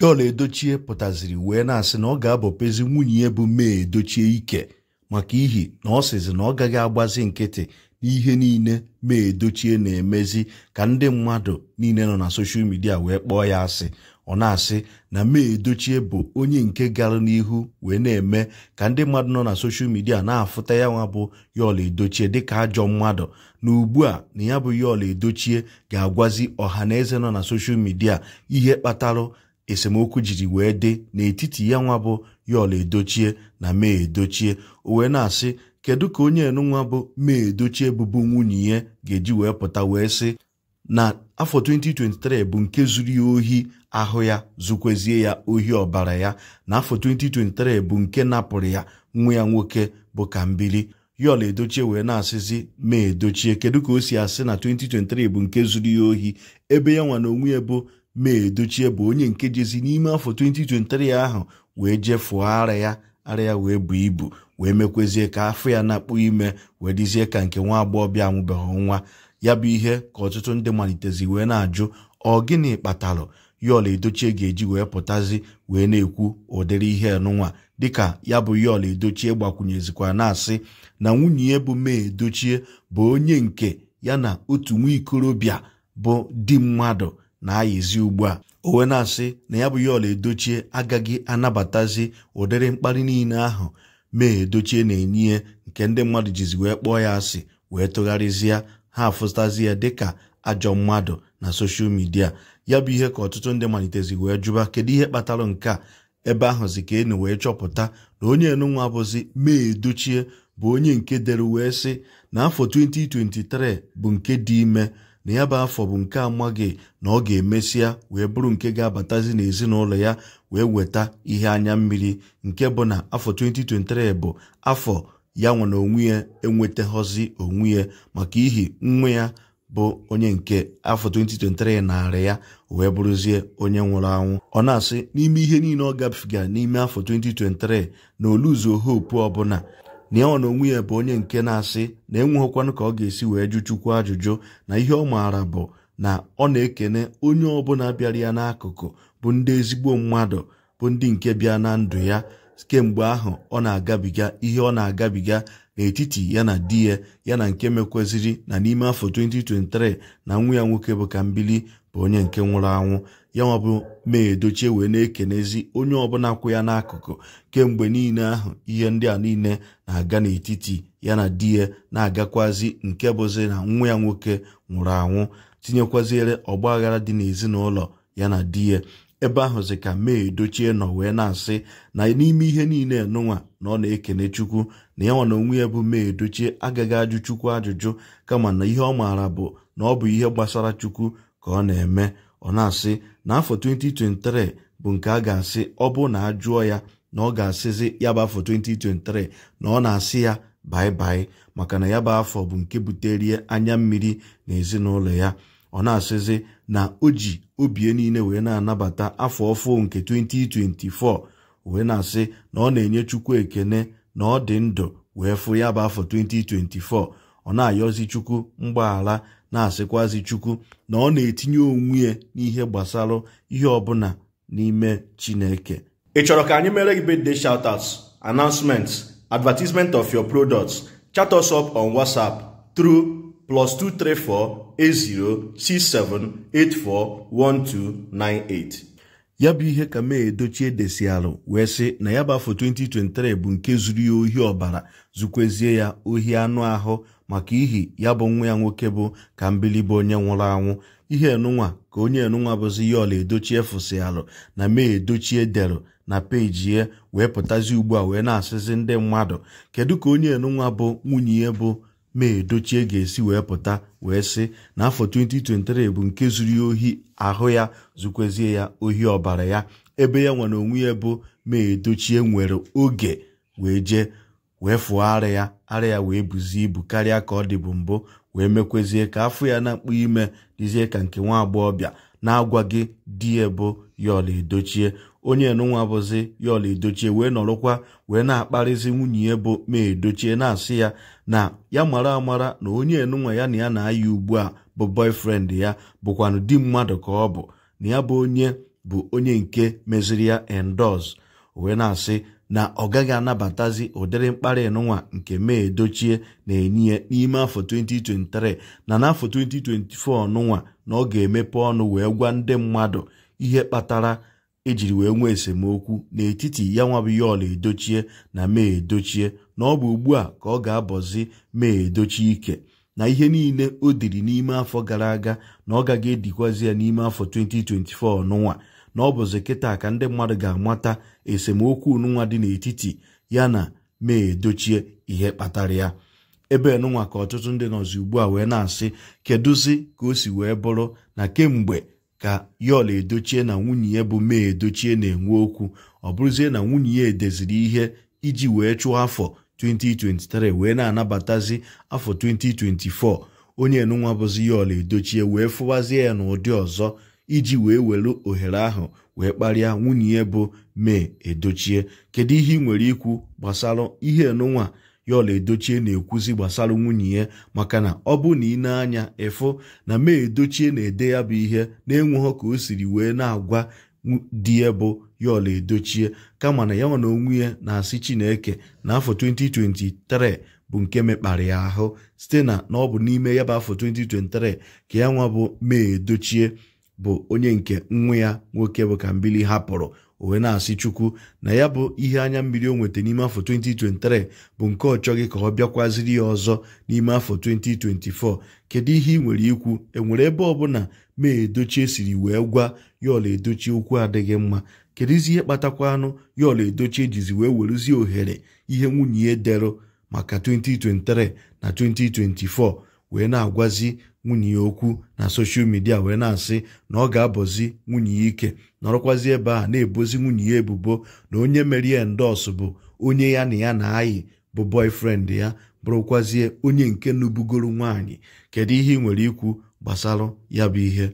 Pịọla Edochie pụtaziri wee na-asị na ọ ga-abọpezi nwunye ya bụ Mee Edochie ike maka ihi na ọ sịzi na ọ gaghị agbazi nkịtị n'ihe niile Mee Edochie na-emezi ka ndị mmadụ niile nọ na soshal midia wee kpọọ ya asị ọ na-asị na Mee Edochie bụ onye nke gara n'ihu wee na-eme ka ndị mmadụ nọ na soshal midia na-afụta ya nwa bụ Yọla Edochie dịka ajọ mmadụ na ugbu a na ya bụ Yọla Edochie ga-agwazi ọha na eze nọ na soshal midia ihe kpatarụ esemokwu jiri wee dị n'etiti ya nwa bụ yọl edochie na mee edochie o wee na-asị kedu ka onye enunwa bụ mee edochie bụbu nwunye ya ga-eji wee pụta wee sị na afọ 2023 bụ nke zuru ya ohi ahụ ya zukwezie ya ohi ọbara ya na afọ 2023 bụ nke napụrụ ya nwa ya nwoke bụ Kambili yọl edochie wee na-asịzi mee edochie kedu ka o si asị na 2023 bụ nke zuru ya ohi ebe ya nwa na onwe ya bụ mee edochie bụ onye nke jezi n'ime afọ 2023 ahụ wee jefụọ ara ya ara ya wee buo ibu wee mekwezie ka afọ ya na-akpụ ime wee dịzie ka nke nwa agbọghọbịa amụbeghị nwa ya bụ ihe ka ọtụtụ ndị malitezi wee na-ajụ ọ gịnị kpatalụ yọl edochie ga-eji wee pụtazi wee na-ekwu ụdịrị ihe nụnwa dịka ya bụ yọl edochie gbakwunyezikwa na-asị na nwunye bụ mee edochie bụ onye nke ya na otu nwa ikorobịa bụ di mmadụ na-ayịzi ugbu a o wee na-asị na ya bụ ya ọla edochie agaghị anabatazi ụdịrị mkparị niile ahụ mee edochie na-enye nke ndị mmadụ jizi wee kpọọ ya asị wee tụgharịzịa ha afụtazi ya dịka ajọ mmadụ na soshal midia ya bụ ihe ka ọtụtụ ndị malitezi wee jụba kedu ihe kpatara nke a ebe ahụzi ka enu wee chọpụta na onye enunwa bụzi mee edochie bụ onye nke dere wee sị na afọ 2023 bụ nke dị ime na ya bụ afọ bụ nke amaghị na ọ ga-emesịa wee bụrụ nke ga-abatazi n'ezinụlọ ya wee weta ihe anya mmiri nke bụ na afọ 2023 bụ afọ ya nwere onwe ya enwetaghọzi onwe ya maka ihi nwa ya bụ onye nke afọ 2023 narị ya wee bụrụzie onye nwụrụ anwụ ọ na-asị n'ime ihe niile ọ gabigara n'ime afọ 2023 na oluzuo hope ọbụla na ọ na onwe ya bụ onye nke na-asị na enweghịkwanụ ka ọ ga-esi wee jụ Chukwu ajụjụ na ihe ọ maara bụ na ọ na-ekene onye ọbụla bịara ya n'akụkụ bụ ndị ezigbo mmadụ bụ ndị nke bịa na ndụ ya kemgbe ahụ ọ na-agabiga ihe ọ na-agabiga n'etiti ya na di ya na nke mekwaziri na n'ime afọ 2023 na nwa ya nwoke bụ ka mbili bụ onye nke nwụrụ anwụ ya nwa bụ edochie wee na-ekenezi onye ọbụla kwụ ya n'akụkụ kemgbe niile ahụ ihe ndị a niile na-aga n'etiti ya na di ya na-agakwazi nke bụzi na nwa ya nwoke nwụrụ anwụ tinyekwaziere ọgba aghara dị n'ezinụlọ ya na di ya ebe ahụzi ka mee dochie nọ wee na-asị na n'ime ihe niile nụnwa na ọ na-ekene chukwu na ya nwa na onwe ya bụ mee dochie agaghị ajụ chukwu ajụjụ kama na ihe ọ maara bụ na ọ bụ ihe gbasara chukwu ka ọ na-eme ọ na-asị na afọ 2023 bụ nke a ga-asị ọ bụ na ajụọ ya na ọ ga-asịzi ya bụ afọ 2023 na ọ na-asị ya baibai maka na ya bụ afọ bụ nke buterie anya mmiri na ezinụlọ ya ọ na-asịzi na o ji obie niile wee na-anabata afọ ọfụ nke 2024 wee na-asị na ọ na-enye Chukwu ekene na ọ dị ndụ wee fụ ya bụ afọ 2024 ọ na-ayọzi Chukwu mgbaghara na-asịkwazi Chukwu na ọ na-etinye onwe n'ihe gbasara ihe ọbụla n'ime Chineke ị chọrọ ka anyị mere gị birthday shoutouts announcement advertisement of your products chat us up on WhatsApp through +2348067841298 ya bụ ihe ka mee edochie desialụ wee sị na ya bụ afọ 2023 bụ nke zuru ya ohi ọbara zukwezie ya ohi anụ ahụ maka ihi ya bụ nwa ya nwoke bụ ka bụ onye nwụrụ anwụ ihe enunwa ka onye enunwa bụzi ya ọla edochie fụsịalụ na mee edochie deru na peji ya wee pụtazi ugbu a wee na-asịzi ndị mmadụ kedu ka onye enunwa bụ nwunye bụ mee dochie ga-esi wee pụta wee sị na afọ 2023 bụ nke zuru ohi ahụ ya zukwezie ya ohi ọbara ya ebe ya nwere onwe ya bụ mee dochie nwere oge wee jee wee fụọ ara ya ara ya wee buzie ibu karịa ka ọ dị bụ mbụ wee mekwezie ka afọ ya na mkpu ime dịzie ka nke nwa agbọghọbịa na-agwaghị di ya bụ ya ọla edochie onye nụnwa bụzi yaola edochie wee nọrọkwa wee na-akparịzi nwunye ya bụ ma dochie na-asị ya na ya mara amara na onye nụnwa ya na ya na ayi ugbu a bụ boyfriend ya bụkwanụ di mmadụ ka ọ bụ na ya bụ onye bụ onye nke meziri ya endos wee na-asị na ọ gaghị anabatazi ụdịrị mkparị nụnwa nke mee dochie na-enye n'ime afọ 2023 na n'afọ 2024 nụnwa na ọ ga-emepe ọnụ wee gwa ndị mmadụ ihe kpatara ejiri wee nwee esemokwu n'etiti ya nwa bụ Edochie na Mee Edochie na ọ bụ ugbu a ka ọ ga-abọzi Mee Edochie ike na ihe niile o diri n'ime afọ gara aga na ọ gaghị edikwazi ya n'ime afọ 2024 n'ụwa na ọ bụzi kịta ka ndị mmadụ ga-amata esemokwu n'ụwa dị n'etiti ya na Mee Edochie ihe kpatara ya ebe nụnwa ka ọtụtụ ndị nọzi ugbu a wee na-asị kedụzi ka o si wee bụrụ na kemgbe ka yọl edochie na nwunye bụ mee edochie na-enwe okwu ọ bụrụzie na nwunye edeziri ihe iji wee chụọ afọ 2023 wee na-anabatazi afọ 2024 onye nụnwa bụzi yọl edochie wee fụwazie ya n'ụdị ọzọ iji wee were ohere ahụ wee kparịa nwunye bụ mee edochie kedu ihe ị nwere ikwu gbasara ihe nụnwa ya edochie na-ekwuzi gbasara nwunye ya maka na ọ bụ na ị na-anya ịfụ na ma edochie na-ede ya bụ ihe na-enweghọ ka o siri wee na-agwa di ya bụ ya edochie kama na ya nwa onwe ya na-asị Chineke na afọ 2023 bụ nke mekpara ya ahụ site na na ọ bụ n'ime ya bụ afọ 2023 ka ya nwa bụ ma edochie bụ onye nke nwa ya nwoke bụ ka mbili hapụrụ o wee na-asị chukwu na ya bụ ihe anya mmiri o nweta n'ime afọ 2023 bụ nke ọ chọghị ka ọ bịakwaziri ya ọzọ n'ime afọ 2024 kedu ihe ị nwere ikwu enwere ebe ọ ọbụla mee edochie siri wee gwa ya edochie okwu adịghị mma kedụzi ihe kpatakwa anụ ya ọla edochi wee weruzie ohere ihe nwunye ya maka 2023 na 2024 wee na-agwazi nwunye ya okwu na soshal midia wee na-asị na ọ ga-abọzi nwunye ya ike nọrọkwazi ebe a na-ebozi nwunye ya ebubo na onye mere ya bụ onye ya na ya na-ayị bụ boyfriend ya bụrụkwazie onye nke nubugoro nwaanyị kedu ihe ị nwere ikwu gbasara ya bụ ihe